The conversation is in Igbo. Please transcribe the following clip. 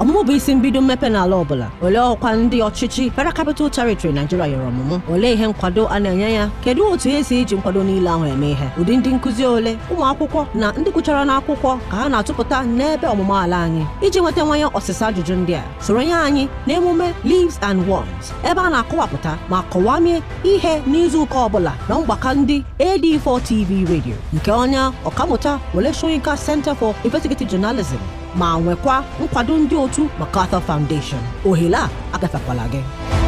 ọmụmụ bụ isi mbido mmepe n'ala ọbụla olee ọkwa ndị ọchịchị Federal Capital Territory Nigeria nyere ọmụmụ olee ihe nkwado a na-enye ya kedu otu esi iji nkwado niile ahụ eme ihe ụdị ndị nkụzi ole ụmụ akwụkwọ na ndị gụchara n'akwụkwọ ka ha na-atụpụta n'ebe ọmụmụ ala anyị iji nweta nwanye ọsịsa ajụjụ ndị a soronye anyị emume Leaves and Worms ebe a na-akọwapụta ma kọwamie ihe n'izuụka ọbụla na mgbakọ ndị AD4 TV redio nke onye ọkammụta Wole Center for Investigative Journalism ma nwekwa nkwado ndị otu Makarthur Foundation ohere a agafekwala gị